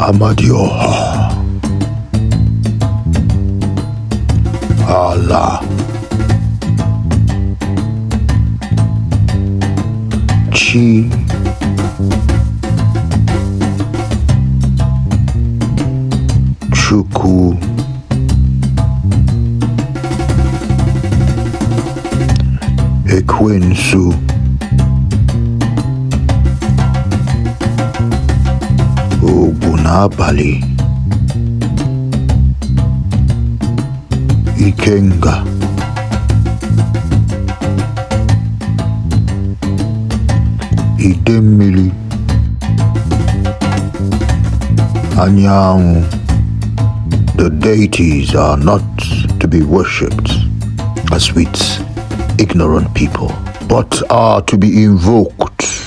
Amadioha. Allah. Chi. Chuku. Equinsu. nabhali ikenga Idemili, Anyang. the deities are not to be worshipped as with ignorant people but are to be invoked